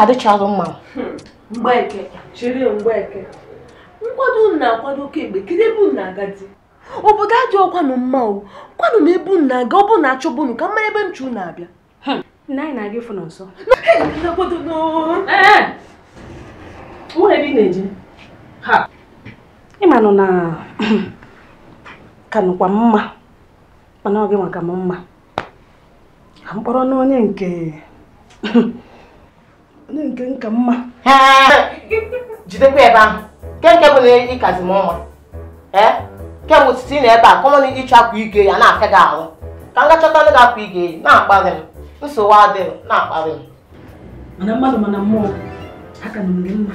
ka adịchaghị mma nkwado na kemgbe ebe unu na-aga obodo adị ọkwanụ mma o kwanụ m ebe unu na-aga ọ bụ na achọbụ unu ka mma ebe nchu na-abịa hmm. anyị na-aga na nso ịmanụ na ka mma mana ọ gị maka m mma ka mkpọrọ n'onye nke onye nke nka mma jidekwa ebe ahụ nke nke bụ na ịkazi m ọnwa ee kemgbe otiti ị na ebe a kọmọn ịchọ akwa ige ya na-afịa gị ahụ ka m gachọta ndị ga-akwa ige eyi na-akparị m nsogbu adịghị na-akparị m mana mmadụ mana mmụọ aka na mgbe mma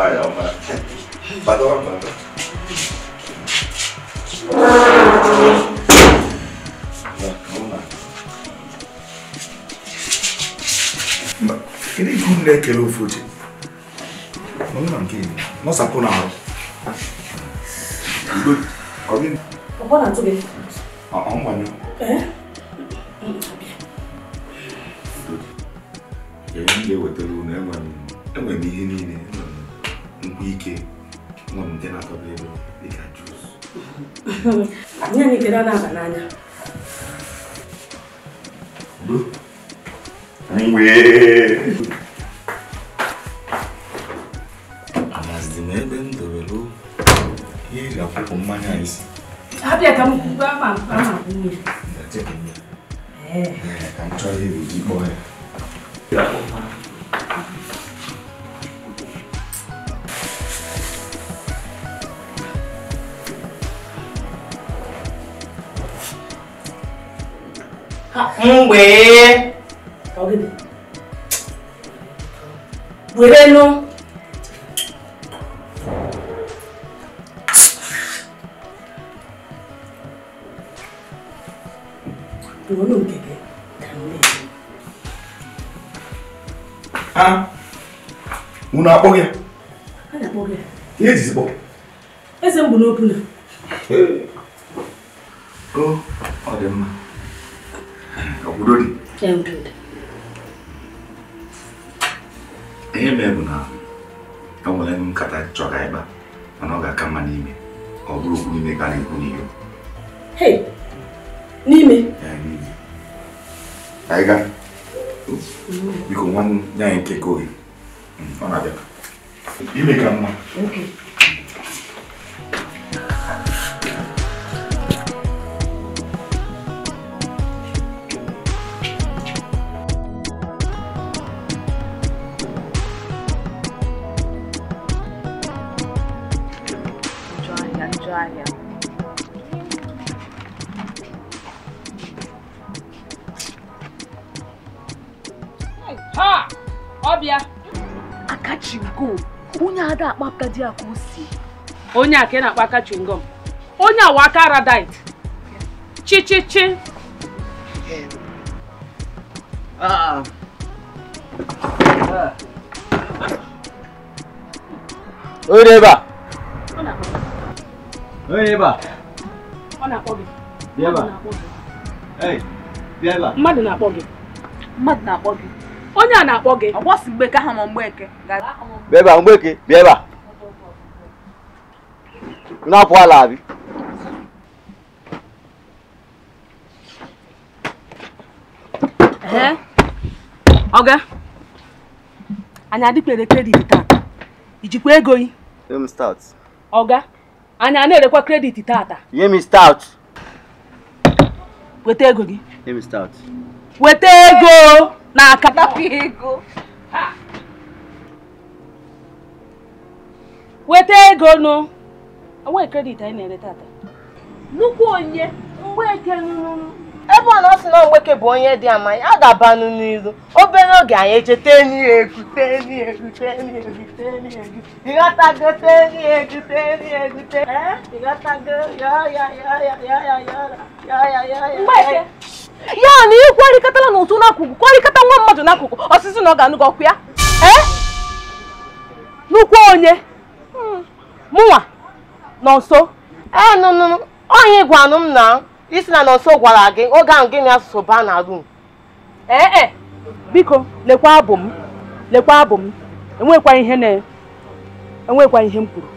Hayır ama. Bak oğlum bak. Kini ibu nne ekele ofu oche. Mọnụ na nke ibu, nọsapụ na arụ. Udo, ọ gị? Ọ gbọna tụ gị. Ọ mgbanyụ. Ee? Nye anyị kedu na-aba n'anya. Anyị Emeka biko nwanne ya nke Kogi hmm, ọ na-abịa ime ka mma ndị a o si onye a ka ị na-akpọ aka chingom onye awa aka radite chichichi onye ebe a onye ebe a ọ na-akpọ gị mmadụ na-akpọ gị mmadụ na-akpọ gị onye a na-akpọ gị ọ gbọsi mgbe ka ha ma mgbeke bịa ebe a mgbeke bịa ebe a na-apụ náà pọ̀ àlàbí. ọga anyị adịkwere kredit tata ijikwa ego yi ọga anyị a na-erekwa kredit start weta ego gị weta ego na akatapụ ego ha weta ego nụ enweghị kredit anyị na-ere tata nnukwu onye mgbeke nnụnụ ebe ọ na ọ sị na mgbeke bụ onye dị ama a ga-abanụ n'iru obere oge anyị eche teni egu teni egu teni egu teni egwu ịghọtago teni egwu teni ịghọtago ya na ị kwarịkọtala n'ụtụ n'akụkụ kwarịkọta nwa mmadụ n'akụkụ ọsịsị na ọ ga ya ya ya onye mụnwa nọnso ee nụnụ onye gwanụ m na isi na nọnso gwara gị oge ahụ gịnị asụsụ baa na rum ee biko lekwa abụ m lekwa abụ m enwekwa ihe na enwekwa ihe m kwuru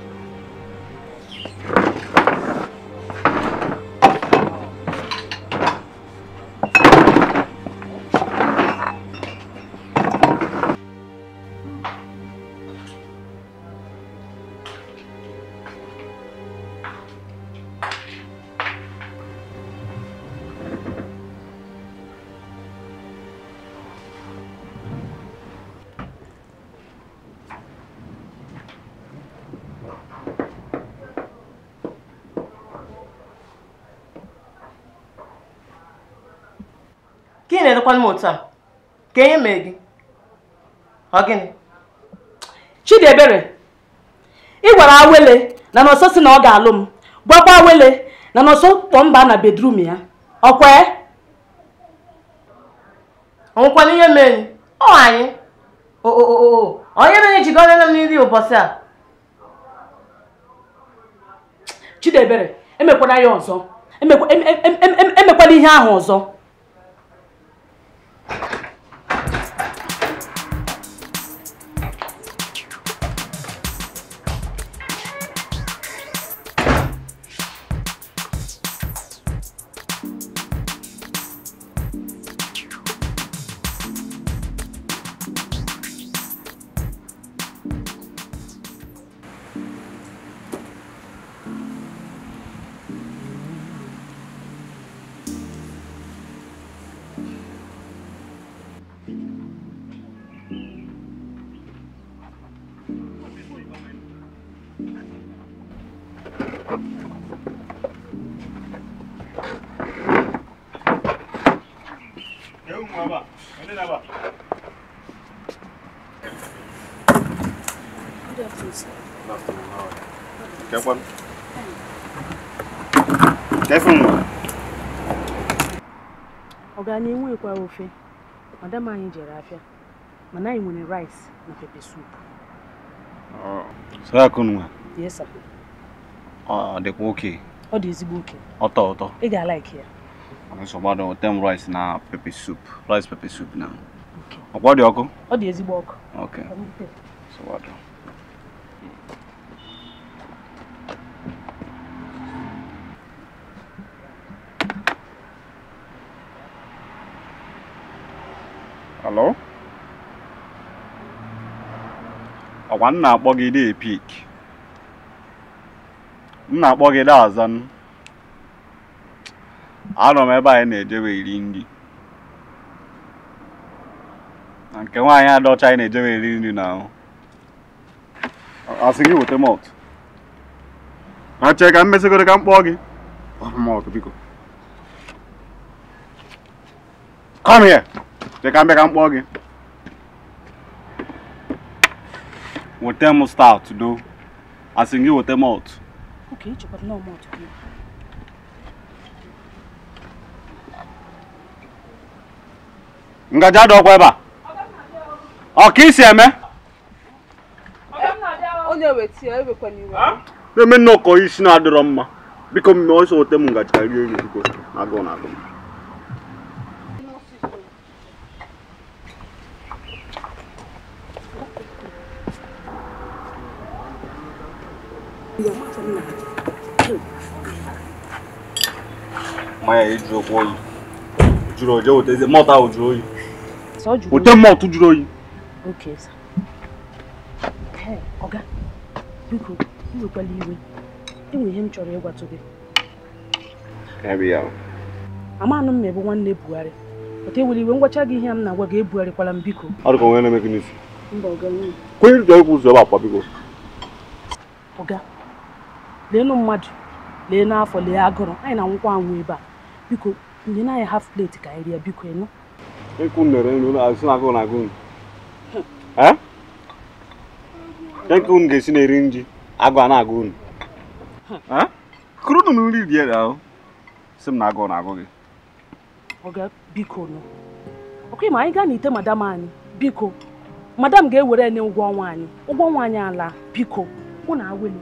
ka e mee gị ọ gịnị Chidiebere ị gwara awele na nọsọ si na ọ ga-alụ m gwakwa awele na nọsọ kpọ mba na bedrum ya ọkwee ọnwụkwana ihe mee ọ anyị onye mere jikọrọ m nri ụbọchị a Chidiebere emekwala ya ọzọ emekwala ihe ahụ ọzọ na ewu ekwa ofe madam anyị jere afịa mana anyị nwere rice na pepe soup sara akunwa yes sir ọ dịkwa oke ọ dị ezigbo oke ọtọ ọtọ ị ga-alaiki ya ọnụsọ gbado tem rice na pepe soup rice pepe soup na ọkwa dị ọkụ ọ dị ezigbo ọkụ ok so Hello? Ọkwa m na-akpọ gị dị Epik. M na-akpọ gị dị Azan. Anọ m ebe anyị na-ejewe iri nri. Na nke nwaanyị adọcha anyị na-ejewe iri nri na ahụ. Asị gị weta mọt. Achee ka m ka m kpọọ gị. Mọt biko. Come here. Cheka mbịa ka m kpọọ gị. Weta m stout do. Asị gị weta malt. Okay, chọkwara na Ngaji adị ọkwa ebe a. Ọ ka isi eme? E iwe. Na-eme nnọkọ isi na-adịrọ mma. Biko mmemme ọsọ weta m ngaji na mmanya jụrụ oyi jụrụ oje wetezi mọtụ ahụ jụrụ oyi wete mọtụ jụrụ oyi iwe ihe m chọrọ ịgwatụ gị amanụ m mme bụ nwanne Buhari pụta ewere iwe ngwacha gị ihe m na-agwa gị ebugharịkwala m biko kwenye ebe akwa biko leenụ mmadụ lee n'afọ lee agụrụ anyị na nwụkwa anwụ ebe a biko na anyị haf pleti ka anyị rie biko ịnụ ịkwụ nere nri azụ na agụ na agụ ya nke unu ga-esi na-eri nri agụ a na-agụ unu kụrụ unu na nri rie ahụ si m na agụ na agụ gị ọga biko nụ ọkụ ma anyị gaa n'ite madam anyị biko madam ga-ewere nye ụgwọ ọnwa anyị ụgwọ ọnwa anyị ala biko mụ na awelu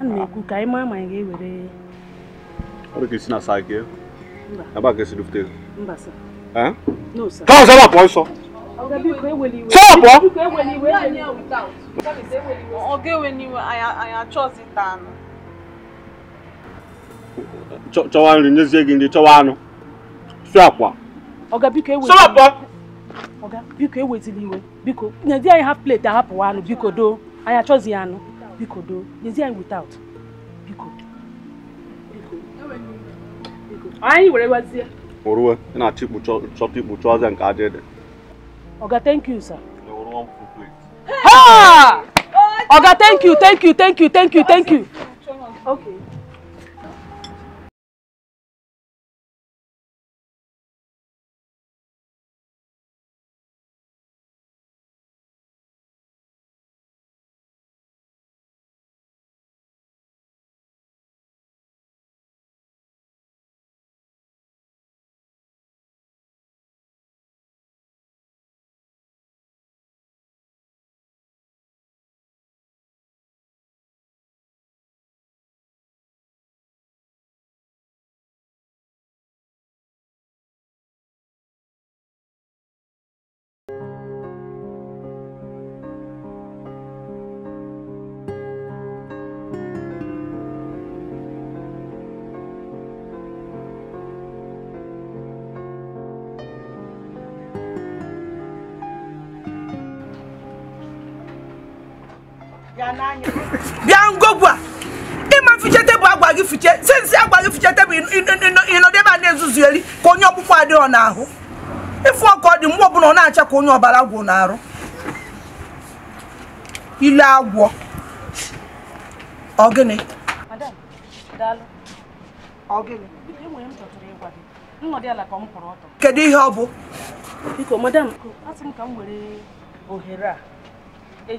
ana m ekwu ka anyị maa ma anyị ga-ewere Olha ga-esi na aqui. É para que esse dufteiro? Não vai ser. Hã? Não, sir. Calma, sai da porta só. anyị achọzi ita anụ. Chọwa nri nyezie gị nri chọwa anụ. Sụ akwa. Oga biko ewe. Sọrọ Oga biko ewezili iwe. Biko, nyezi anyị ha plate ahapụwa anụ biko doo. Anyị achọzi ya anụ. biko do is anyị without biko anyị were gbazie orue ị na-achọ ikpu chọta ikpu chọọ ọzọ nke aja ede ọga thank you sir Ha! ọga thank you thank you thank you thank you thank you okay bịa ngogwu a ịma mfiche tebụl agwa gị fiche sensị agwa gị fiche tebụl ịnọdebe a na-ezuzu eri ka onye ọkpụkpọ adịghị n'ahụ ịfụ ọkụ ọ dị mgbe ọbụla ọ na-acha ka onye ọbara gwụ n'arụ ile agwọ ọ gịnị kedu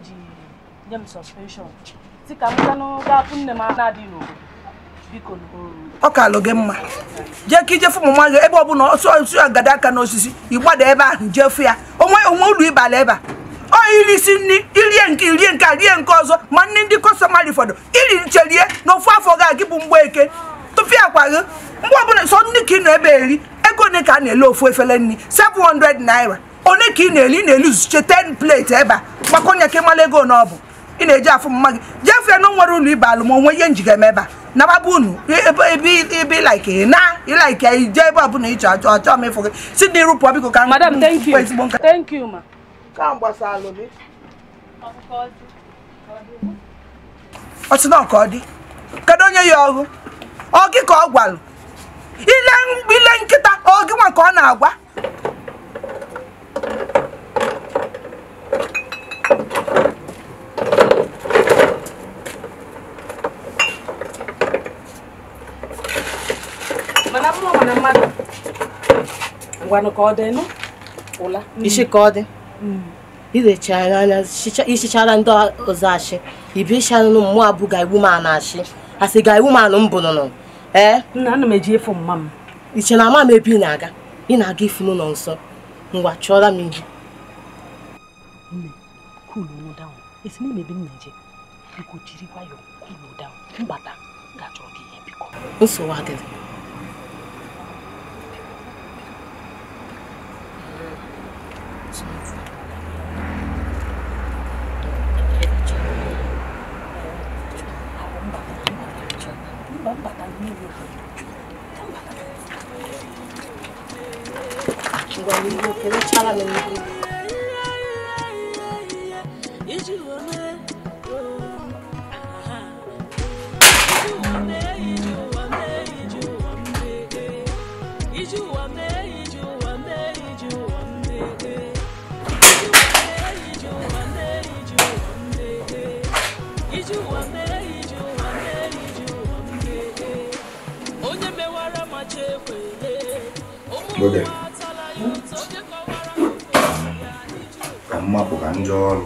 ihe nye m si ka m ganụgapụ nne m na-adịghị n'obodo ọ ka alụ gị mma jee ka ijefu ụmụ nwa gị ebe na ọsọ osi agada aka n'osisi ịgbada ebe ahụ jefu ya onwe onwe ụlọ ịbala ebe a ọ iri isi nri irie nke irie nke a nke ọzọ ma nri ndị kọstọmarị fọdụ iri na ofu afọ ga-agị bụ mgbe eke tụfịa gị mgbe ọbụla sọ ka ị na-ebe eri ego na-ele ofu efere nri 700 naira ka na-eli na zuche ebe a na ọ ị na-eji afụ mma gị jefee na nwere ụlọ ibe alụm onwe ihe njiga eme ebe a nababa unu ebe ilaike na ilaike ije ebe ọbụla ịchọ achọ achọ m ịfụ gị si dị rụpụọ biko ka ezigbo nka ọ sị na ọka ọ dị kedu onye ya ọgụ ọ gị ka ọ gwalụ ile nkịta ọ gị nwa ka ọ na-agwa ngwanụ ka ọ dị nụ ụla ka ọ dị ndị ọzọ achị ibichanụ mmụọ abụga iwu ma na achị asị ga ewu ma nụ mbụ nụnụ ee nna ana m eji efu mma m iche na ama m ebe ị na-aga ị na-aga ifu nụ nsọ ngwa chụọra m ihe. adịghị 이거 이거 계속 잘하면 oge hmm? ka mma bụ ka ọrụ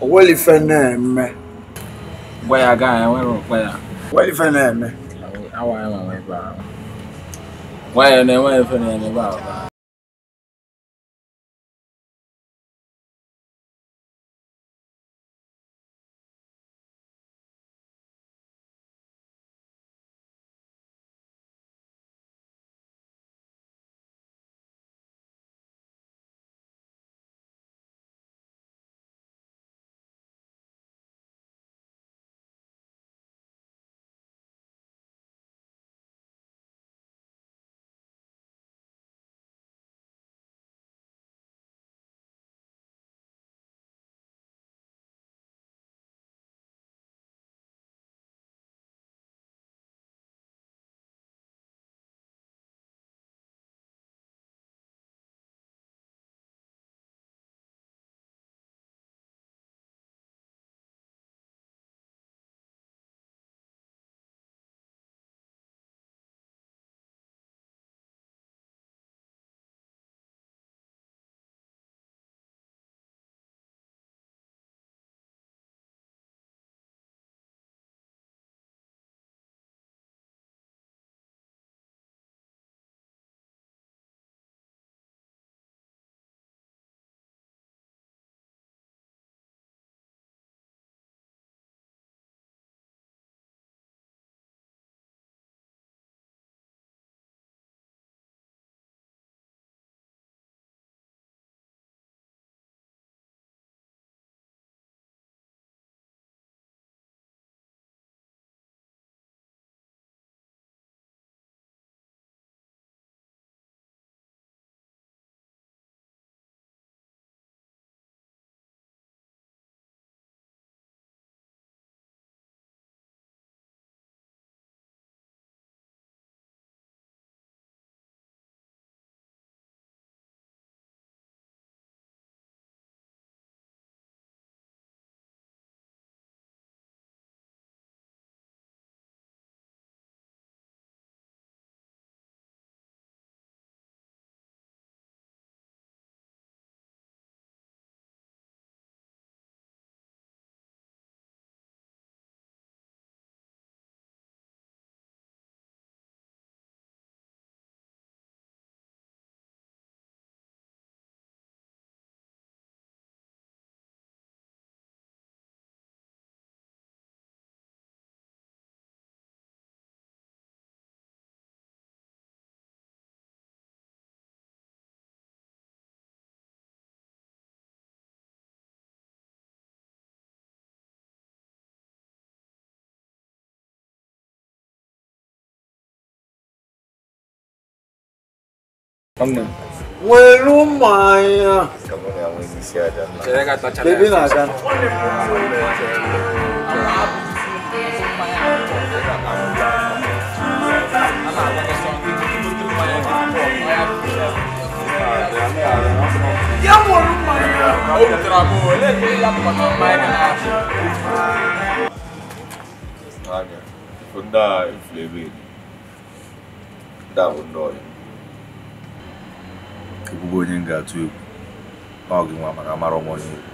Wali fene me. Waya guy, where waya? Wali fene me. Awa awa waya. Waya ne waya fene me ba. Kamu, kamu Weru maya. Baby na gan. Ya weru maya. O tra bo le le la pa na maya na. Aga. Funda inflebe. Da undoi. ekwugo onye m ga-atụ egwu ọ gị nwa maka amara ọnwa onye egwu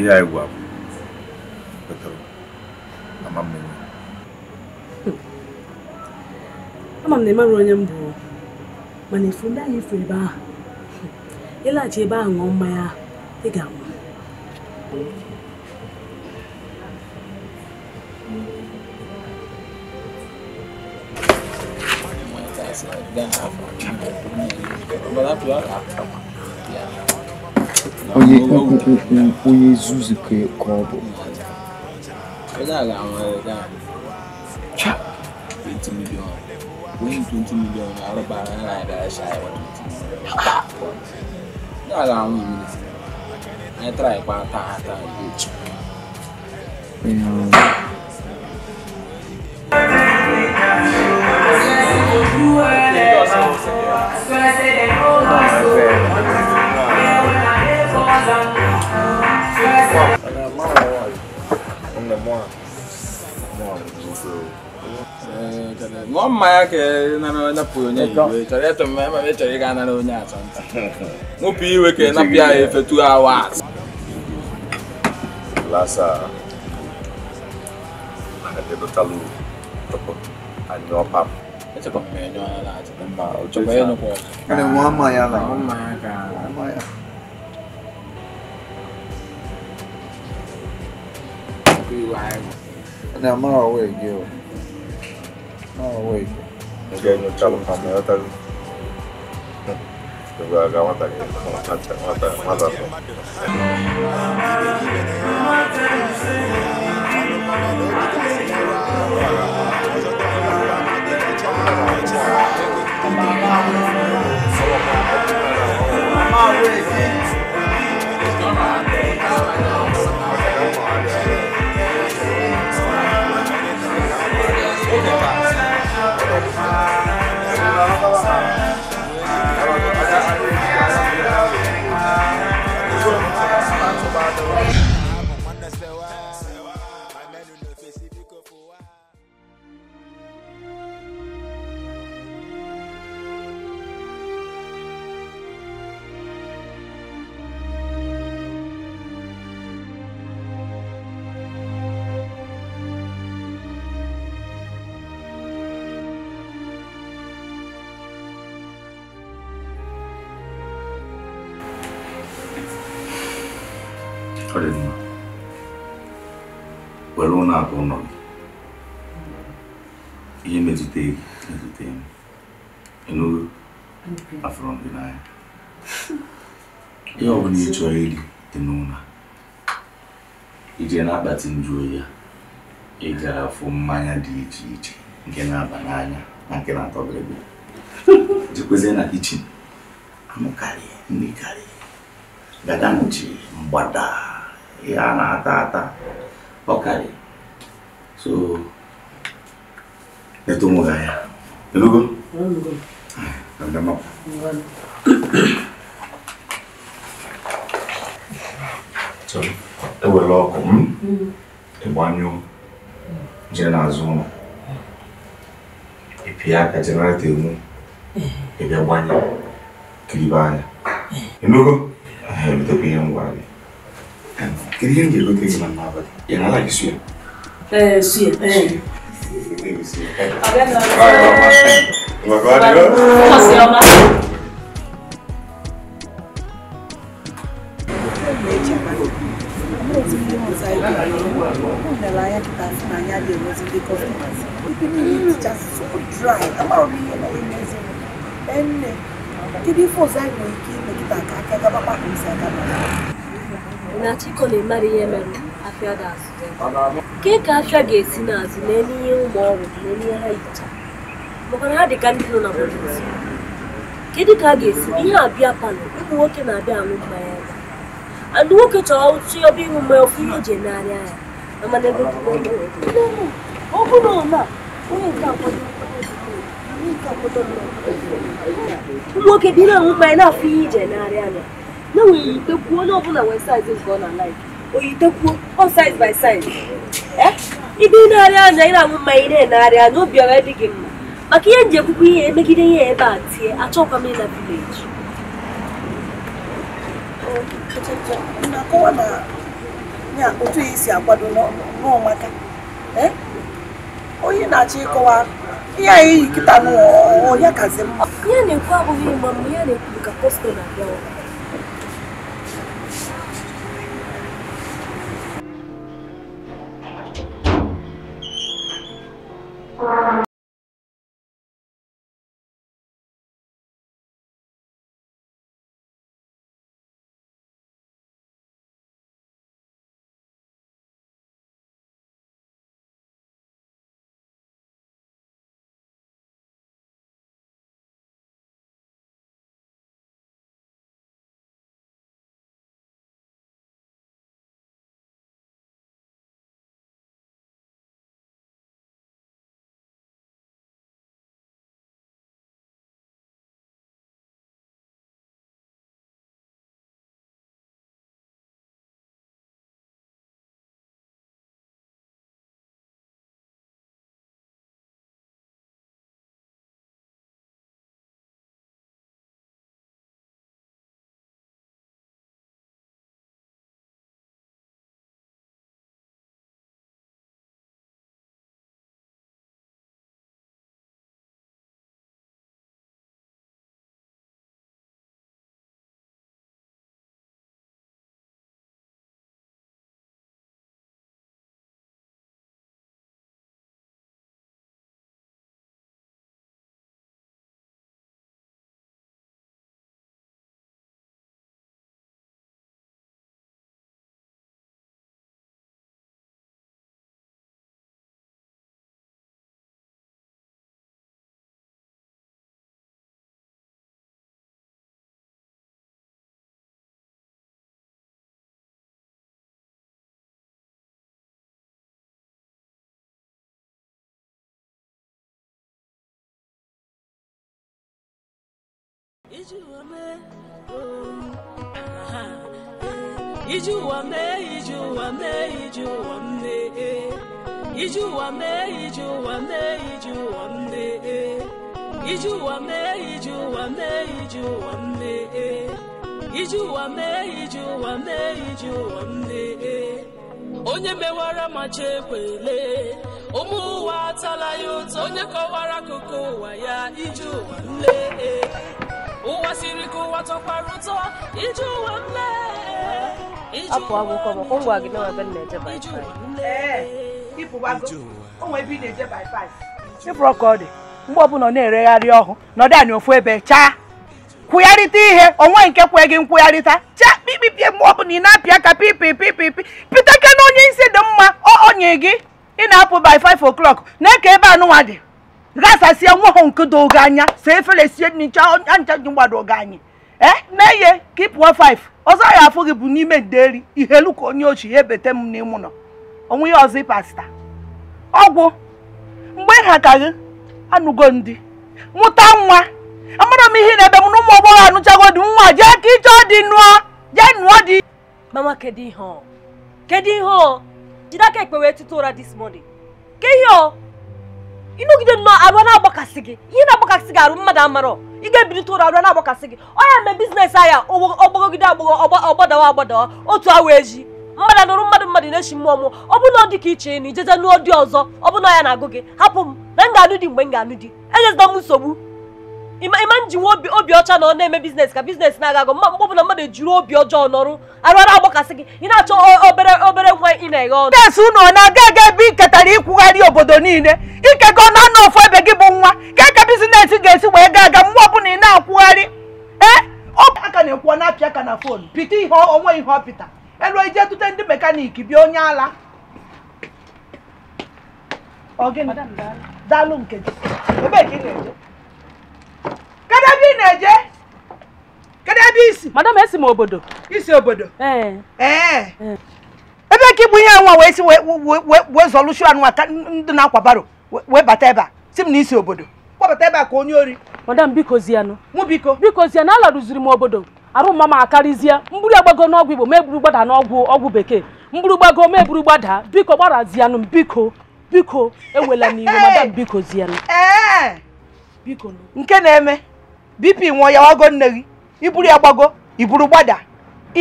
ihe anyị gwa bụ kwetara ama mmiri ama m na ịmara onye m bụ mana ifu ndị ahụ ifu ebe ahụ ịlaghachi ebe ahụ ṅụọ mmanya ị ga-anwụ onye onye zuzu ka ọ bụ wọ́n Ah, ah. ngõ uh, maya eh, ke na na na pu onye iwe chọrọ eto mme ma me chọrọ ịga na onye achọ nta nwụpụ iwe ke na pịa efe tu awa lasa adebutalu anyị ọpapụ sebenarnya lah sebenarnya coba ya nopo ada mama ya lah mama kan mama ya tapi why ada mama away gitu mama away jadi kalau kamu ya tadi coba kamu tadi mata mata mata mata I'm out here, man. na-abati njụ oyi ya ị gara fụ mmanya dị iche iche nke na-aba n'anya na nke na-atọ bịrịbị jikwezie na kichin anụ karịa nri karịa dada nụchi mgbada ihe a na-ata ata ọ karịa so eto onwe ha ya elugo ndamapụ ewere ọkụ m ịgbanyụọ jee n'azụ ụlọ ịpịa aka jenaratọ enwu ịbịa gbanye kiribe anya ịnụgo ebidobe ihe ngwa gị kedu ihe m ga-egote gị na n'abalị ị na-ala gị suya ee eh, suya ee Thank you. eti ndị ibe anya kịta na anya dị ndị kọstọmas niile dry m ihe na emezi enne kedu ife ọzọ anyị nwere ike ime kịta aka gabakpa ka isi aka na chiko na-emara ihe mere afịa ga-azụ ke ka afịa ga-esi n'azụ n'elu ihe ụmụ ọrụ n'elu ihe ha yicha maka ha dị ka ndị nọ na kedu ka a ga-esi ihe abịa ụmụ nwoke na-abịa mmanya nwoke chọrọ si ọba ihu mgbe ofu ihe eji narị anya mana ebe ọ bụrụ na onye nke akwado nwoke dị na na-afụ ihe ije narị anya na nwere yitekwuo onye ọbụla nke ọ na laif ọ saiz saiz anya aṅụ mmanya na-enarị anya obi dị gị mma maka ihe nji ihe emegide ihe ebe a tie achọkwa m ịna vileji na akọwa na ya otu ya isi akwado n'ọmaka eh? onye na-achọ ịkọwa ihe anyị yi kịta n'ọhịa kazi mma ihe na-ekwu abụghị ịgba mgbe ya na-ekwu ka posto na-abịa Oh, uh-huh. Ijuwame, Ijuwame, Ijuwame, eh. Ijuwame, Ijuwame, Ijuwame, eh. Ijuwame, Ijuwame, Ijuwame, eh. Ijuwame, Ijuwame, Ijuwame, Ijuwame, onye mewara ma chekwele ụmụ ụwa atala ya ụtọ onye kọwara akụkụ ụwa ya ije ụwa nle ụwa siri ka ụwa tọkwara ụtọ iji ụwa m lee apụ akwụkwọ maka ngwa gị nawa ebe na-eje ịpụrụ ọka ọ dị mgbe ọbụla ọ na-eregharị ọhụụ nọdụ anyị ofu ebe chaa kwụgharịta ihe onwe nke kwee gị nkwụgharịta chaa kpikpipie mgbe ọbụla ị na-apịa aka pipipipipi piteke na onye isi dị mma ọ onye gị ị na-apụ by 5 o'clock na-eke ebe anụnwa dị gasasie nwa ha nke do oge anya saa efere sie ncha ncha ji mgbado oge anyi. ee eh? mee ihe ka ị ya afụ gị bụ n'ime nderi ihe elu ka onye ochi ya ebete m n'ime ụlọ ozi ọgwụ mgbe ha ka anụgo ndị mụta nwa amara m ihe na-ebe m na ụmụ agbọghọ anụchago nwa jee ka ije mama ihe ihe this morning ke ihe ịnọgide nnọọ arụ na-agbakasị gị ihe na-agbakasị gị arụ mmadụ amarọ ị ga-ebilite ụra arụ na-agbakasị gị onye mee bizinesi ahịa ọgbagogide agbọghọ ọgbadawa agbadawa otu awa eji mmadụ anụrụ mmadụ mmadụ na-echi mmụọ mụ ọ bụrụ na ọ dị ka iche na ijeje nụọ dị ọzọ ọ na ya na-agụ gị hapụ m na m ga-anụ di mgbe m ga-anụ di enyezila m nsogbu ịma njinwa obi ọcha na ọ na-eme biznes ka biznes na-aga agụ mgbe ọbụla mmadụ obi ọjọọ nọrụ arụara agbakasị gị ị na-achọ obere obere nwa ị na-eghe ọnụ unu ọ na-aga aga ebe ị ketara ịkwụgharị obodo niile ikekọ na anọ ofu ebe gị bụ nwa ka ka biznes ga-esi wee ga aga mgbe ọbụla ị na-akwụgharị ee eh? aka na-ekwu na fon ihe onwe ihe elu ndị bịa onye ala Kedụ ebe ị na-eje? Kedụ ebe isi? Madam esi m obodo. Isi obodo? Ee. Ee. Ebe ka ịbụ ihe nwa wee si wee zọlụshu anụwa ka ndị na-akwa baro wee bata ebe a si m na isi obodo. Kpọbata ebe a ka onye ori. Madam biko zianụ. Mụ biko. Biko zianụ rụziri m obodo. arụ mama akarịzie mgburu agbago n'ọgwụ igbo ma eburu gbada n'ọgwụ ọgwụ bekee mgburu gbago ma eburu gbada biko gbarazianụ m biko biko ewela n'iwe madam biko zianụ biko nke na-eme Bipi nwụọ ya wago nne gị iburu ya gbago iburu gbada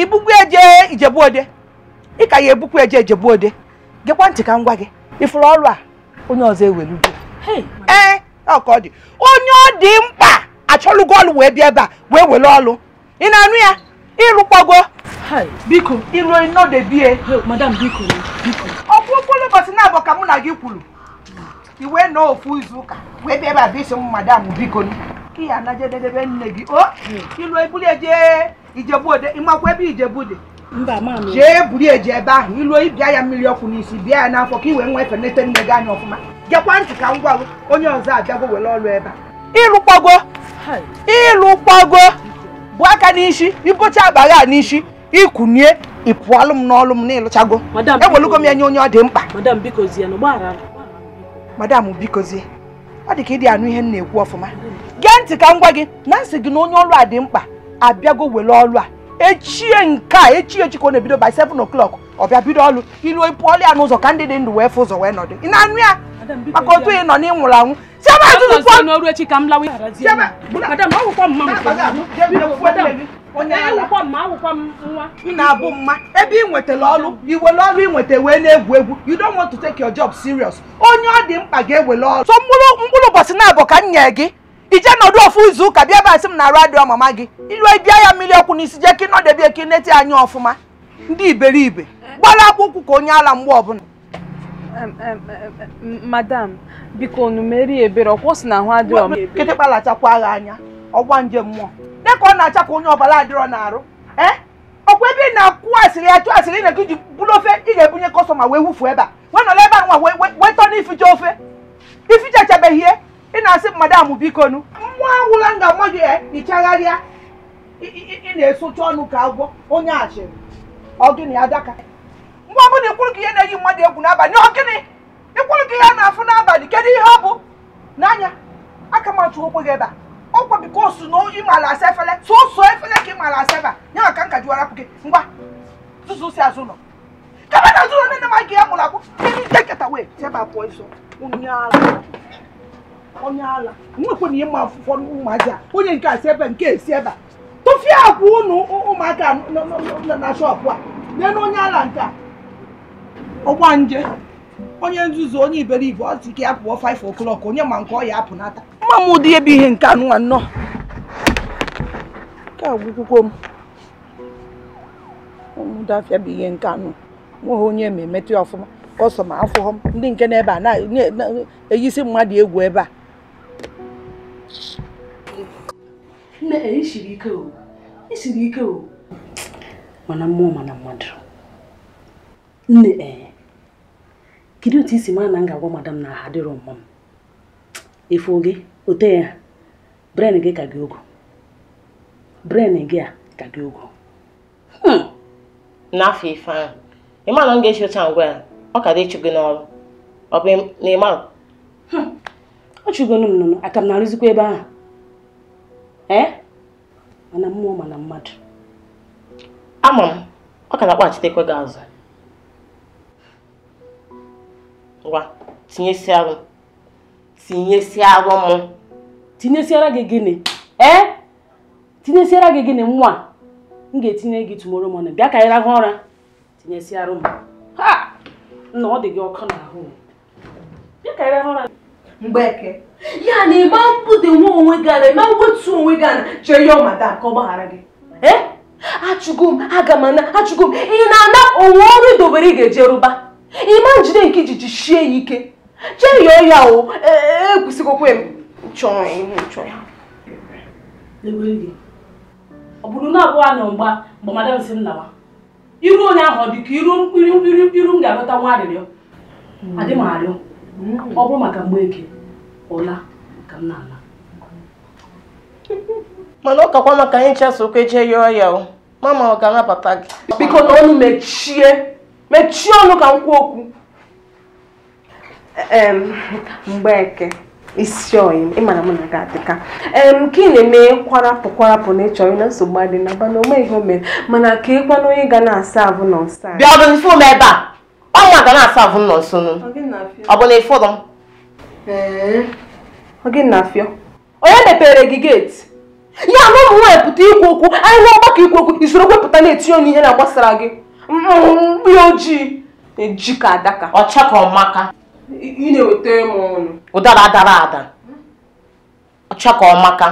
ibugwu eje ijebuode ị ka ya ebukwu eje ijebuode gekwa ntị ka ngwa gị ifuru ọrụ a onye ọzọ ewelugo ee ọka ọ dị onye ọ dị mkpa achọlụ gọọlụ wee bịa ebe a wee were ọrụ ị na-anụ ya ịrụkwago biko iruo nọdebie madam biko Biko. ọkwụ okporo ụbọchị na abọ ka mụ na gị kwuru iwe nọọ ofu izu ụka wee bịa ebe a bụ isi m madam biko ka ya na jededebe nne gị o ilu ebuli eje ijebu ode ịmakwa ebe ijebu dị jee buru eji ebe ahụ iluo ịbịa ya mmiri ọkụ n'isi bịa ya n'afọ ka ị wee nwa efenete nne gị anya ọfụma ka ngwa onye ọzọ abịago ọrụ ebe a bụ aka n'isi ịbụcha akpagha a n'isi ikwunie ịpụọlụ m n'ọlụ m n'ịlụchago ewelugo m ya nye onye ọ dị mkpa madam ọ dị ka ịdị anụ ihe m na-ekwu ọfụma ntị ka m gị na nsị gị na onye ọrụ a dị mkpa abịago were ọrụ a echie nke a echie echi ka ọ na-ebido by 7 o'clock ọ bịa bido ọrụ ilu e pụọlụ ya n'ụzọ ka ndị dị ndụ wee fụ ụzọ wee nọdụ ị na-anụ ya maka otu ị nọ na-abụ mma ebe ị nwetara ọrụ iwere ọrụ wee na-egwu egwu you don't want to take your job serious onye ọ dị mkpa ga-ewere ọrụ so mkpụrụ ụbọchị na-abụ ka m nye gị ije nọdụ ofu izu ụka bịa ebe a sị m na arụ adịghị mama gị ilu e bịa ya mmiri ọkụ n'isi jee ka ị nọdebe ka ị nete anyị ọfụma ndị iberibe gbara akwụkwụ ka onye ala mgbe ọbụla madam biko unu merie ebere ọkwọ si na ahụ adịrọ m kịtị kpalachakwa agha anya ọgwa nje mmụọ dịka ọ na-acha ka onye ọbala adịrọ na-arụ e? ọkwa ebe ị na-akwụ asịrị ya chụọ asịrị na ji bụrụ ofe ị ga-ebunye kọstọma wee wufuo ebe a wee nọrọ ebe a nwa wee tọ n'ificha ofe ificha ị na-asị madam biko nụ nwa awụla nga mmadụ ya ichagharịa eh, ị na-esocha ọnụ ka agwọ onye achịrị ọ gịnị adaka mgbe ọbụla ikwuru ka ihe na-eyi mmadụ egwu n'abalị ọ gịnị ikwuru ka ihe na-afụ n'abalị kedu ihe ọ bụ n'anya aka machụ okwe gị ebe a ọkwa biko su na ị maara asa efele, sụsụ efele ka ị maara asa ebe a m maka nka jiwarapụ gị ngwa tụzụ si azụ ụlọ kaba na azụ ụlọ nne nne m gị ya mụrụ akwụ ndị nkeketa wee sebe pụọ iso ụnyaahụ onye ala nwekwana ihe ma afụfọ mma ji a onye nke asị si ebe nke esi ebe a tụfie akwa unu ụmụaka na shọpụ a lee na onye ala nke a ọgba nje onye nzuzu onye iberibe ọ sị ka ya pụọ 5 o'clock onye ma nke ọ ya apụnata mma m ụdị ebe ihe nke anụnwa nnọọ nke a gwụkwụkwọ m dafịa bụ ihe nke anụ nweghị onye ma emetụ ya ọfụma ma afụghọ m ndị nke na ebe a na-eyisi mmadụ egwu ebe a nne isiri eh, ike o isiri ike o mana mmụọ mana mmadụ nne ee eh. kedu otu isi mara na m ga-agwa madam na ha adịrọ mma m efu gị ote ya bren gị ka gị ogo bren gị a ka gị ogo hmm. n'afọ ife ahụ ịma na m ga-esi otu a ngwa ya ọ ka dị ịchụ gị n'ọrụ ọ bụ n'ịma ọ chụgonu m nnụnụ aka m na-arụzikwa ebe ahụ ee eh? mana mmụọ mana mmadụ ama m ọ ka na-akpaghachitekwe gị azụ ngwa tinyesi arụ tinyesi arụ m tinyesiara gị gịnị ee eh? tinyesiara gị gịnị nwa m ga-etinye gị tumoro mọnụ bịa ka anyị rahụ ụra tinyesiarụ m ha nna ọ dị gị ọkụ n'ahụ bịa ka anyị ụra mgbeke ya na ịgba mpụ dị nwa onwe gị ana ịma wetu onwe gị ana chọọ yọọ madam ka ọ gbaghara gị ee eh? achụgo m aga m ana achụgo m ị na-ana onwe ọrụ idobere ị ga-eje rụba ịma njide nke ijiji shie ya ike chee yọọ ya o ekwesịghịkwa e, m chọọ ya ọ bụrụ na abụọ na mgba mgbe madam si m lawa iru onye ahụ dị ka iru mkpiri mkpiri mkpiri m ga-alọta nwa arịrịọ adị m arịọ mm. ọ bụrụ maka eke. ụla ka m na-ala mana ọ kakwa maka anyị chasụ ụka jee yọọ ya o mama ọ ga-anabata gị biko na ọnụ mechie mechie ọnụ ka m kwuo okwu mgbeke isi oyi ịmana mụ na gị adịka em ka ị na-eme kwarapụ kwarapụ na ịchọrọ na nsogbu adị na ba na o meghị o mere mana ka ịkwa na onye ga na-asa ahụ nọ nsa bịa ọdụ ife ebe a ọnwa ga na-asa ahụ nọ nso ọ bụ na ịfụrụ m oge na-afịọ onye mepere gị geeti ya na ụmụ nwaanyị pụta ikwu okwu anyị hụ ọgbakọ ikwu okwu isoro kwepụta na-etinye onye ihe na-agbasara gị mkpi mm, mm, mm, ojii eji ka adaka ọcha ka ọmaka ị na eweta m ọnụ ụdara adara ada ọcha ka ọmaka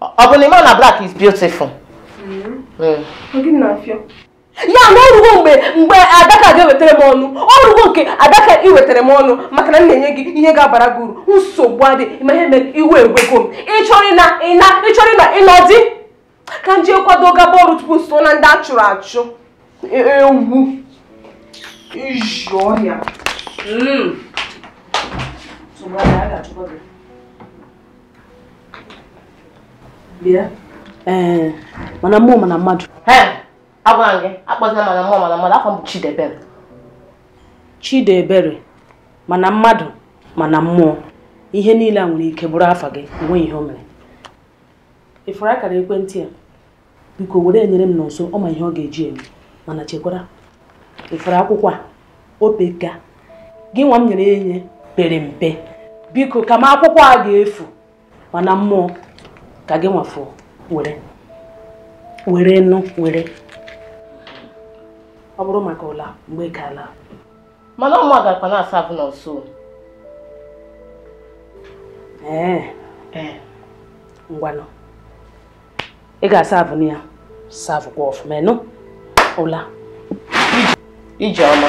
ọ bụ na ịma na black is beautiful. ọ gị na-afịọ ya na ọrụgo mgbe mgbe adaka ga-ewetara m ọnụ ọrụgo nke adaka iwetara m ọnụ maka na m na-enye gị ihe ga-abara gị uru nsogbu adị ma ihe mere iwe egwego m ịchọrị na ịna dị ka m kwado gaba ọrụ tupu so na ndị a chụrụ achụ e, e, ewu iji ọhịa hmm. mana mana mmadụ agwara gị mana mmụọ mana mmadụ afọ m bụ Chidebere Chidebere mana mmadụ mana mmụọ ihe niile a nwere ike bụrụ afa gị enweghị ihe o mere ifuru akara ekwentị a biko were enyere m n'ụsọ ọ ma ihe ọ ga-eji eme mana chekwara ifuru akwụkwọ a opeka gị nwa m nyere ya enye pere mpe biko ka m akwụkwọ a ga-efu mana mmụọ ka gị nwafuo were were nụ were ọ bụrụ maka ụla mgbe gaala mana ọma gakwa na-asa abụ na nso ngwanụ ị ga-asa abụ na ya saa ọfụma ịnụ ụla ije ọma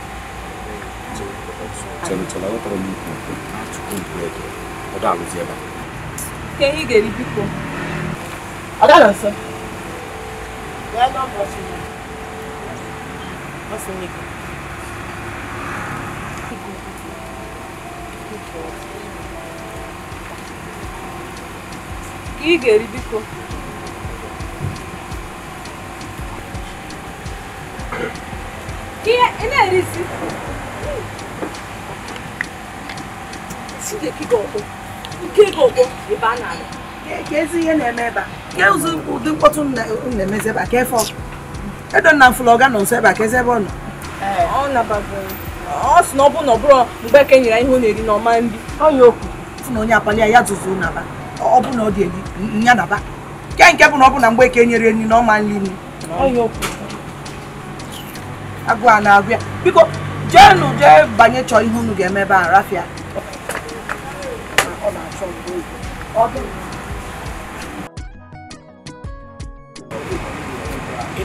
chelụchelụ tọrọ m ikwu ka ị ga biko ihe ị na-erisi nke ga ebe a na-alụ. ka ezi ihe na-eme ebe a ụdị mkpọtụ na-emezi ebe a ka efe edonna na mfụlọga nọ nso ebe a ka eze ebe ọ nọ ọ sị na ọ bụrụ na ọ bụrụ mgbe eke nyere ihe ọ na-eri na ọma nri ọnya okwu na onye akpali ya zụzụ naba ọ bụ na ọ dị eri ya naba ke nke bụ na ọ bụ na mgbe eke nyere nri na ọma nri nri agụ a na-agụ ya biko jeenu jee banye chọọ ihe unu ga-eme ebe a rafia ị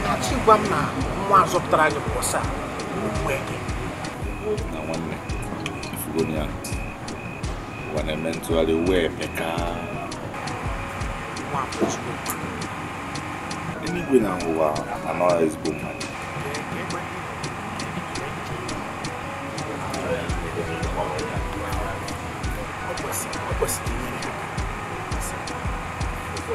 na-achọ ịgwa m na nwa zọpụtara gị bụ ọsa na nwanne ifugo na-eme ntụgharị eluigwe na ụwa ezigbo mmadụ o kwesịrị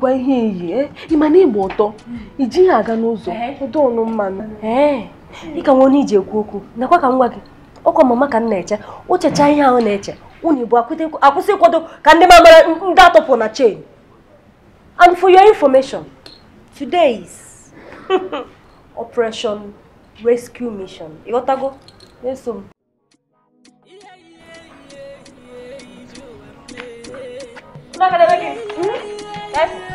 bụkwa ihe iyi eh? ị ma na ịgba ụtọ iji ijighị aga n'ụzọ ọdọọnụ mmanụ ee dịka nwa onye iji ekwu okwu nakwa ka m gị ọkwa mama ka m na-eche ochecha ihe ahụ na-eche unu bụ akwụsị ịkwado ka ndị mamara ndị atọpụ na chain and for your information today is operation rescue mission ịghọtago eso m Una academia hmm? aquí. ¿Eh?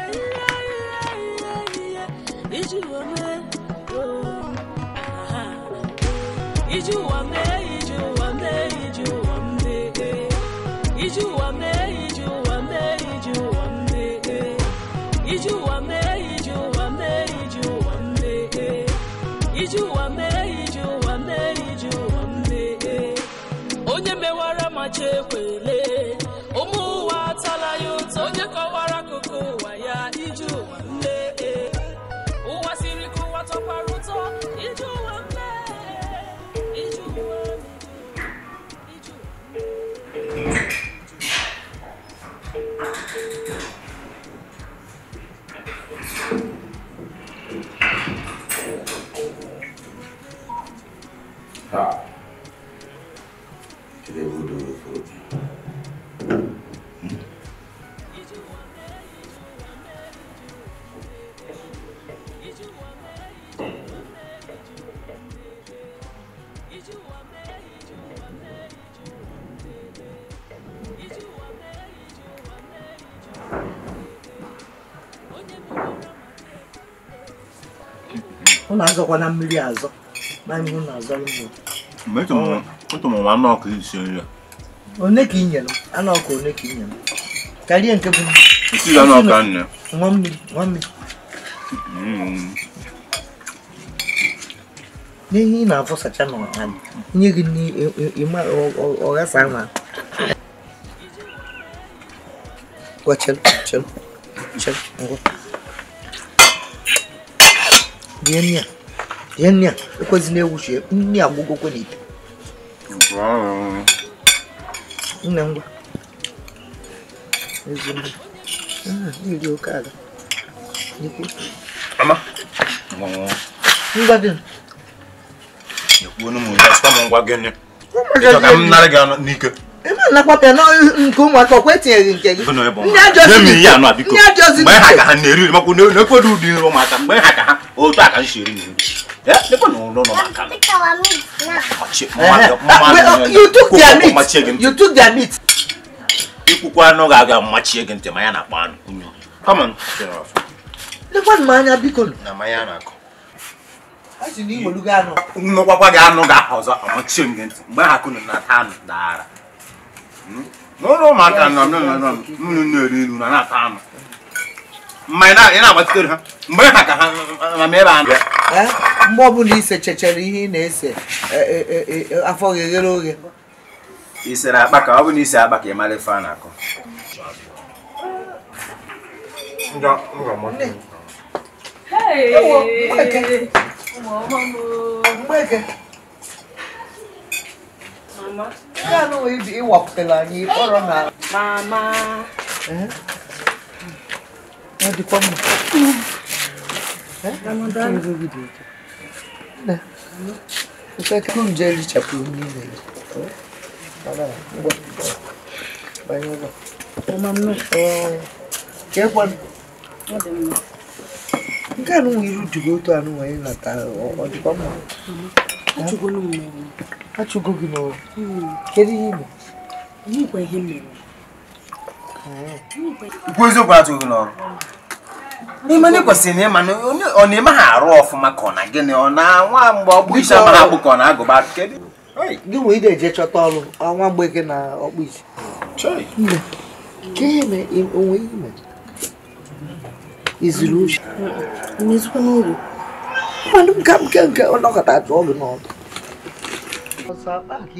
Is you a man? ụnụ mmiri azọ na ihe ụnụ azọrọ mmiri isi nri one ka i nyere anụ one ka i karịa nke bụ isi anụ ọkụ n'ihe ị na-afọsacha n'ọha nye gị ọghasa ahụ Gwa ngwa. rie nri a rie nri a ekwezila ewuchie nri agbụgokwe n'ite nne ngwa oke ala ngwa ekwuo n'ụmụ ya m ngwa gịnị ịchọ ka m n'ike ebe anakwapịa nke ụmụaka ọkwa etinyeghị nke gị ndị ajọzi mgbe ha ka ha na-eri ụmụaka mgbe ha ka ha otu aka nsi eri anụ ga-aga gị ntị ma ya na-akpọ anụ. m anya biko. Na na-akọ. Nnọkwakwa gị anụ ga amachie m gị ntị mgbe ha kụnụ na n'ụlọ ụmụaka na-eri elu na na-ata ama mma ị na agbatitere ha mgbe ha ka ha ebe mgbe ọbụla ise chechara ihe ị na-ese afọ ghere oghe isere akpa ka ọ bụ na ise akpa ka ị mara ife a na-akọ Hey! Hey! mama. Kano iwak e e tela ni e orang na. Mama. Eh? Adi eh, kwa mo. Eh? Mama da. Na. Uta kwa mjeli chapu ni le. Baba, ngo. Bayo ngo. Mama. Eh. Ke kwa. Ngo de mo. Nke anụ nwe iru dịgo otu anụ nwe ị nata ọ dịkwa mma. achụgo gị n'ụwa kedu ihe igbe ikwu eziokwu achụgo gị n'ọrụ n'ime na ịkwesịrị na ịma ọ na-eme ha arụ ọfụma ka ọ na gịnị ọ na nwa mgbe ọgbụ isi ama na ka ọ na-agụba gị nwee ide eje chọta ọrụ ọnwa mgbe gị na ọkpụ isi onwe ime izuru uche n'ezikwa n'oru mmadụ nke nke nke ọnọkọta atụ ọgụ n'ọdụ ọsọ akpa ka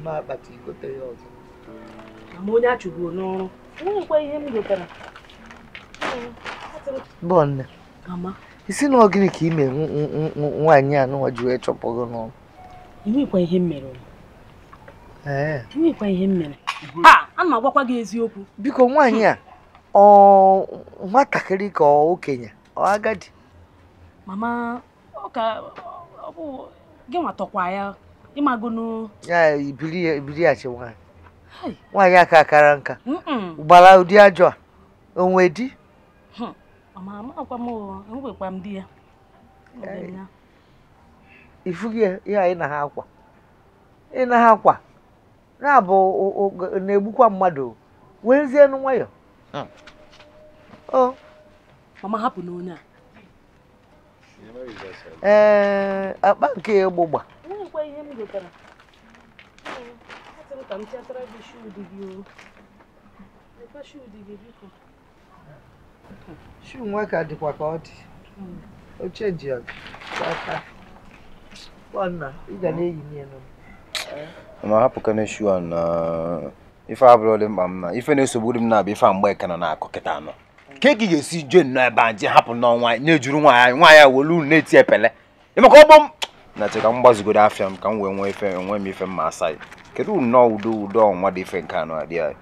mma akpata ya ọzọ ma ihe isi na ọgịnị ka ime nwaanyị a nụwa ji wee chọpụghị n'ọrụ ihe a na-agbakwa eziokwu ọ okenye ọ agadi mama ọ ka ọ bụ gị nwa tọkwa ya ịmago ibiri ya ibiri ya chi nwaanyị nwaanyị aka akara nka gbara ụdị ajọ a onwe di hmm. mama amakwa m e ya ihe anyị na ha akwa ị na ha akwa na-abụ na-egbukwa mmadụ werezienụ nwayọ hmm. mama hapụ n'onye a ee akpa nke gbụgba shuu nwa ka dịkwa ka ọ dị oche ji aka ị ga na-eyi ma hapụkana a na ife abụrụlị mkpa m na ife na-esogburu m na-abịa ife a mgbe ka na na akụ kịta anọ ka eke ga-esi jee nnọọ ebe a je hapụ nnọọ nwaanyị na-ejuru nwaanyị nwaanyị a welu unu na-eti epele ịmaka ọgbọ na che ka m gbazigoro afịa m ka m wee nwee ife enwe m ife mma asa ya kedu nnọọ udo udo ọnwa dị ife nke anụ adị anyị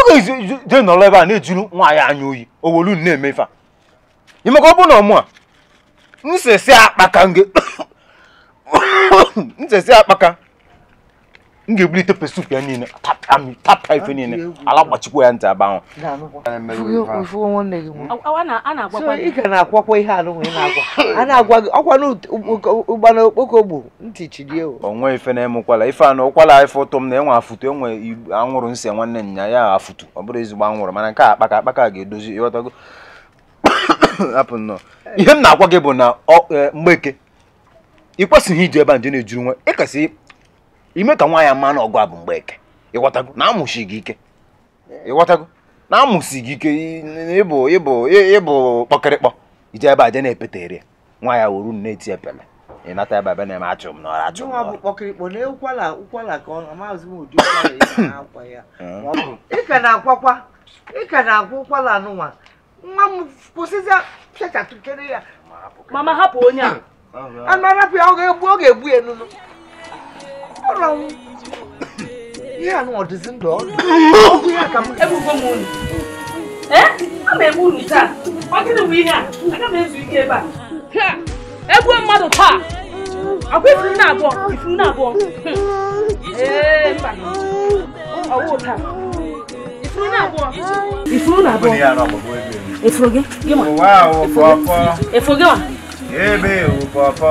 oge je nọrọ ebe a na-ejuru nwaanyị anya oyi o welu unu na-eme ife a ịmaka ọ bụ na ọmụ a nsesi akpaka nge nsesi akpaka m ga-ebulite pesup ya niile tapa ife niile ala gbachikwa ya ntị aba ị ga na-akwakwa ihe anụ a na-agwa gị okpoko gbu ntị chidie o nwe ife na-eme ụkwala ife anụ ụkwala ife ụtọ m na enwe afụtụ enwe anwụrụ nsị nwanne nya ya afụtu ọ bụrụ ezigbo anwụrụ mana nke a akpaka akpaka ga-edozi ịghọtago hapụ nnọọ ihe m na gị bụ na e, mgbeke ị kwesịghị iji ebe a nje na-ejuru nwa ime ka nwa ya mmanụ na ọgụ a bụ mgbe eke na amụsi gị ike ịghọtago na amụsi gị ike ịbụ ịbụ ịbụ kpọkịrịkpọ ije ebe a je na-epeta ere nwa ya wuru na-eti epele ịnata ebe ebe na-eme achụ m n'ọrụ achụ n'ọrụ ọ m ụkwala ya mama hapụ onye a anụ ya ọ ga-egbu ya ọ̀rọ̀ ọ̀hún ní àná ọ̀dẹ̀ sí ń dọ̀ ọ́kùnrin àkàmú. ẹ bú fún mu nù ẹ ọ ma egbu unu taa ọ gịnị bụ ihe a aga m ezu ike ebe a egbuo mmadụ taa ọkwa ifuru na abụọ ifuru na abụọ ee mba ọwụ taa ifuru na abụọ ifuru na abụọ efuru gị gị ma efuru gị ma ebe ewu pọpọ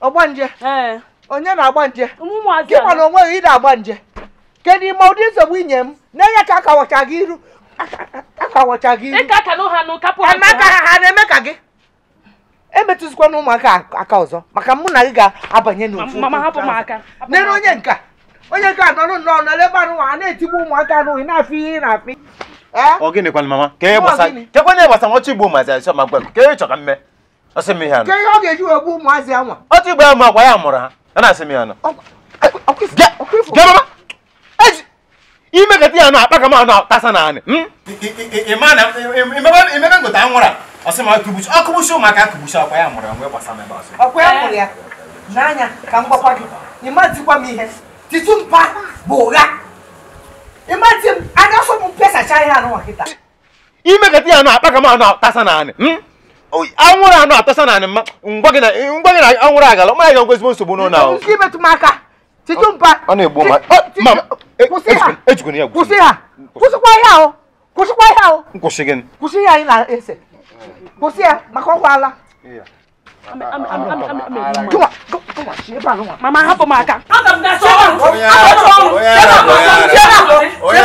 ọgbanje hmm. onye na-agba nje gị mana onwe gị ịda agba nje kedu ime ụdị nsogbu inye m na-enye ka akawacha gị iru akawacha gị iru emeka ha na-eme ka gị emetụzikwana ụmụaka aka ọzọ maka mụ na gị ga-abanye n'ofu onye nka onye nka nọrọ nnọọ nọrọ ebe anụ a na-etigbu ụmụaka n'ohi na-afị ihe na-afị ọ gịnịkwana mama kekwana gbasara ọchị igbo mazi asọ ma gwa ke ịchọ ka mme Asemi hano. Ke yo ge ju ebu mu azi anwa. O ti gba mu akwa ya mura ha. Na asemi hano. Okrifu. Ge mama. Eji. Ime ke ti hano apaka ma hano tasa na ani. Hmm? Ima na ime ba ime na ngota anwura. Asemi akubuchu. Akubuchu maka akubuchu akwa ya mura ngwe gbasa me ba so. Akwa ya mura ya. N'anya ka mgbakwa gị. Ima tikwa m ihe. Titu mpa bụ ụgha. Ima ti m anya so m pesacha ihe anụ nwa kịta. Ime ke ti hano apaka ma hano tasa na ani. Hmm? anwụrụ anụ atasa na anịma ngwa gị na anwụrụ agala mara ga ngwa ezigbo nsogbu n'ụlọ ahụ ọ na-egbu ma e- ejikwana ya kwụsị ha kwụsịkwa o kwụsịkwa ya o nkwụsị gị kwụsị ya anyị na-ese kwụsị ya maka ala mama hapụ m aka onye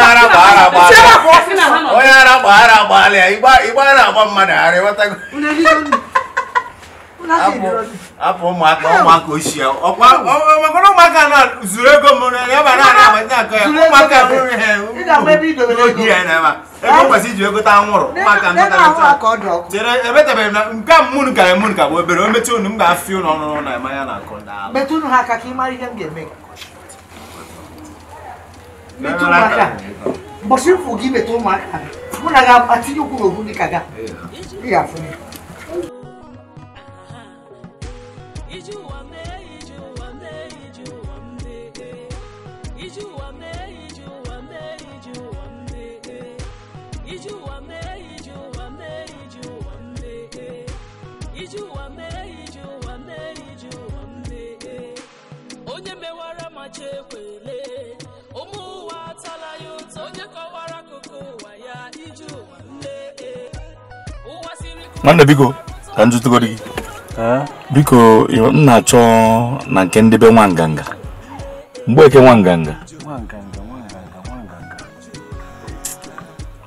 ara gbaghara gbaalịa igbe ara agba mmadụ ara apụ ụmụaka ụmụaka ochie ọkwara ụmụaka na zuru ego ya ya ụmụaka eh, na ego eh? kwesị iji anwụrụ ụmụaka chere na nke a ka ka bụ obere o unu m ga-afị ụlọ ọnụrụ na ema ya na akụ ndị ihe mụ na ga-atinye ụkwụ n'obu dị ka ga ị ụbọchị nne nwanne biko ka m gị biko m na-achọ na nke ndebe nwa nganga mgbe eke nwa nganga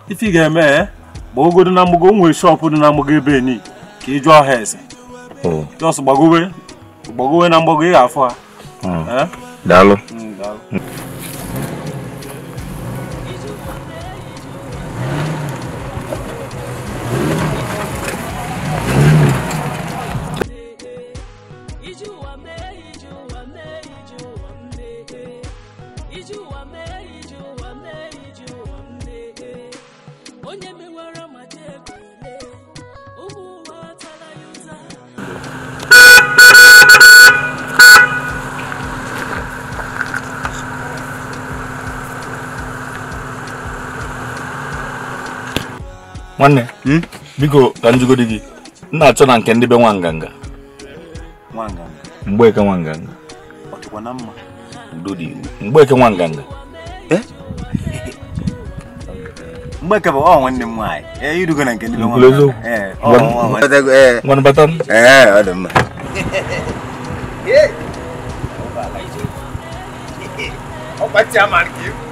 ife ị ga-eme gba eh? ogodo na mgbago nwere shọpụ dị na mgbago ebe ka ị jụọ ha eze oh. jọs gbagowe gbagowe na mgbago ị ga Dalo. Hum, dalo. nwanne hmm? biko ka gị na-achọ na nke ndị be eh? nwa nganga mgbeke nwa nganga mgbeke nwa nganga ọ nwanne m eh, na nke ndị be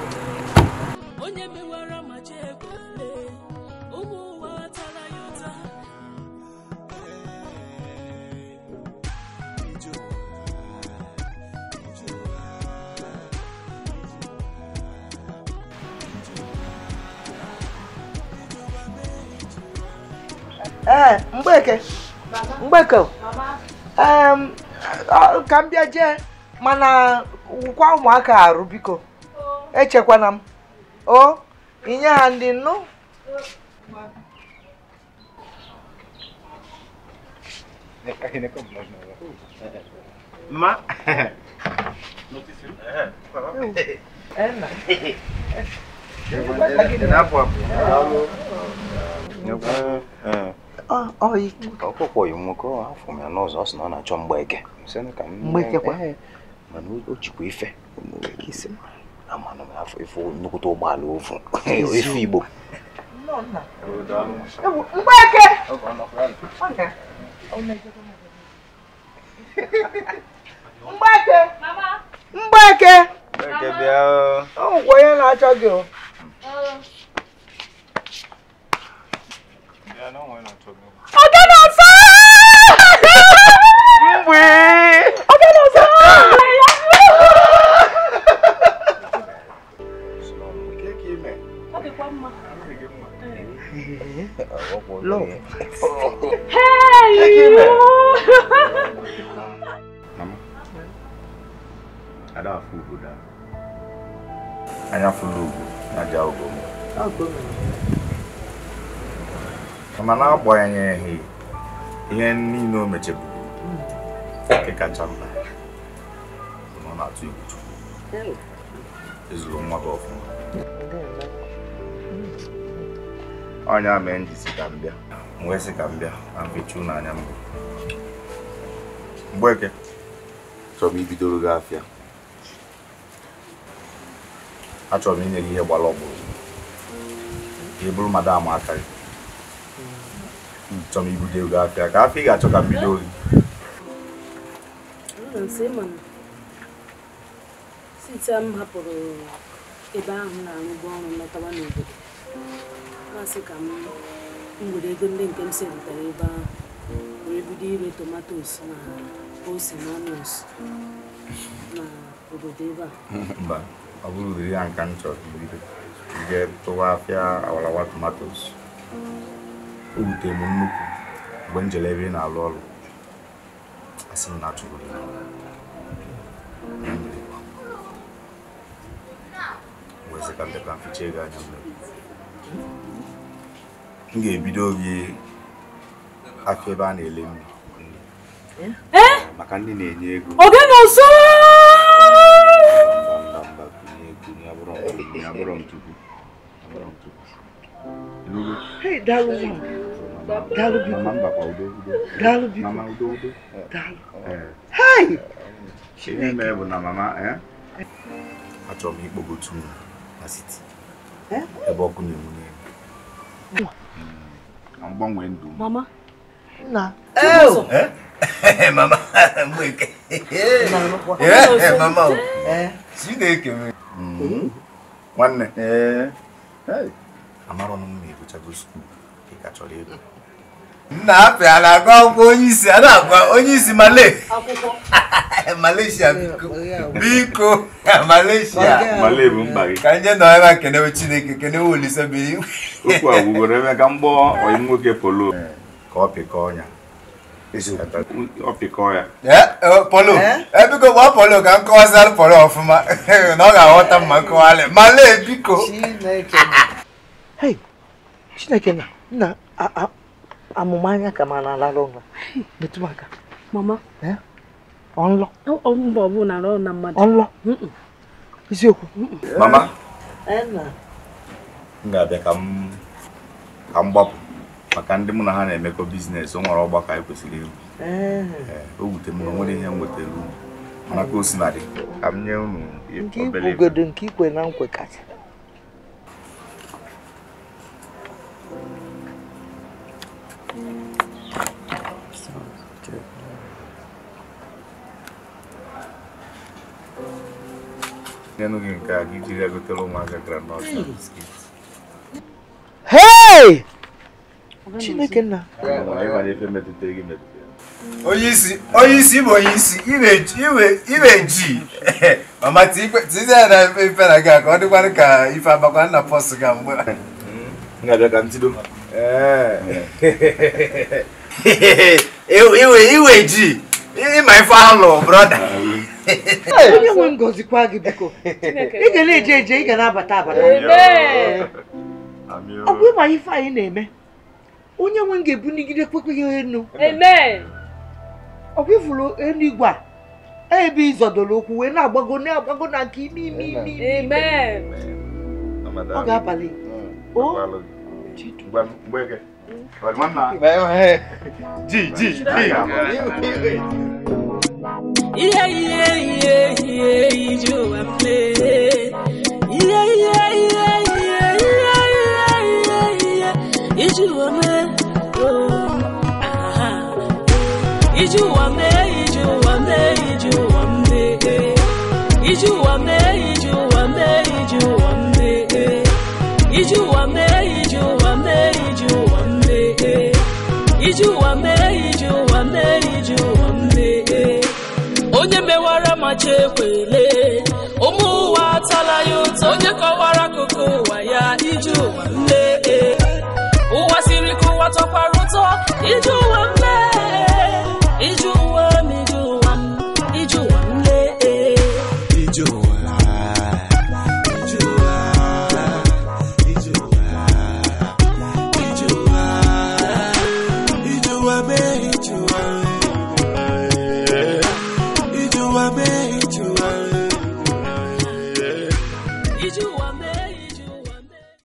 ka m bịa jee mana kwa ụmụaka arụ biko echekwana m o inye ha ndị nnu Ma. ọkpụkpọ yi nwoke afọ m ya n'ụzọ ọ sị na ọ na-achọ mgbeke mana o jikwa ife ife nnukwute ụgbọala ofu ife Yeah, no one not talking. Ọ̀gá náà sọ. Mbwe. Ọ̀gá náà sọ. Love. Hey, you. Mama. Ada afu buda. Aya fulu. Aja ogomo. Ogomo. mana n'agbanyeghị ihe niile o mecheburu nke kacha mma ọ na-atụ egwu chukwu ezuru nwa gị ọfụma ọnya mee njisi ka m bịa wee sị ka m bịa na mfechu n'anya mbụ eke chọrọ m ibidoro gị afịa achọrọ m inye gị ihe gbara ọgbụrụ ka ị bụrụ madam aka gị mchamibu geografia akafika achoka Midori. Nsema site m hapụrụ ebe ahụ na-arụbu ọrụ lọtawa n'obodo masị ka m were ego ndị nke m serụtara na ose na onions Ba, obodo ebe a mba ọ bụrụ udiri ya tomatoes. ewutere m nnukwu mgbe m ebe ị na-alụ ọrụ asị m na achụrụ gị ndị ka mficha ego anya mmiri m ga-ebido gị afọ ebe a na-ele nri maka ndị na-enye ego oge na ọzọ Hey, that woman. daalụ bi daalụ bi daalụ hai chineke achọrọ m ikpogo otu na siti eh? ebe ọkụ na-enwu hmm. na mgbanwe ndụ mama nna eh? mama mgbeke eh? mama mm. nwanne amarọ m na-egochago skuul ị ka chọrọ ego na-apịala agwa onye isi a na-agwa onye isi Malaysia biko Malaysia ka nje nọ ebe a kenewe Chineke kenewe Olise bi okwu a gwugoro ebe ka mgbọ onye nwoke polo ka ọ pịkọọ ya ọ pịkọọ ya e, polo ebiko e, gba polo ka m kọwazara polo ọfụma na ọ ga-aghọta mma nkọwalị male biko Chineke na nna amụma anya ka ma na-alala ụlọ metụ aka mama ọlọ mba ọ bụla na na mmadụ ọnlọ isiokwu mama m ga-abịa ka m gbapụ maka ndị mụ na ha na-emekọ biznes ọ nwere ọgbakọ anyị kwesịrị ịhụ. o wute m na onwere ihe m wetara unu mana ka o si na dị ka m nye unu obere nke ikwe na nkwe kacha nenhum assim. é, que aqui tiver que ter uma granota. Hey! Chineke nna. Onye isi, onye isi bụ onye isi, iwe iwe iwe ji. Mama tikwe tize na ife na gị ka ọ dịkwanụ ka ife abakwa nna pọs ga mgbe. Ngabịa ka ntido. Iwe iwe ji. Ịma ife alụ, brọda. onye nwe m gọzikwa gị biko ị na-eje eje ị ga na-abata abata ọ bụ ịma ife anyị na-eme onye nwe m ga-ebunigide kpekpeghị enu ọ bụ ifuru eluigwe a e ebe ịzọdoro ụkwụ wee na-agbago na-agbago na nke ime ime ime ime ọ ga-abalị Yeah, yeah, yeah, yeah, you are playing. Yeah, yeah, yeah, yeah, yeah, yeah, yeah, yeah, Oh, ah, you are man, you are man, you are man. You are mmachi ekwele ụmụ ụwa atala ya ụtọ onye kọwara akụkụ ụwa ya iji ụwa nne e. ụwa siri ka ụwa tọkwara ụtọ iji ụwa e. iji ụwa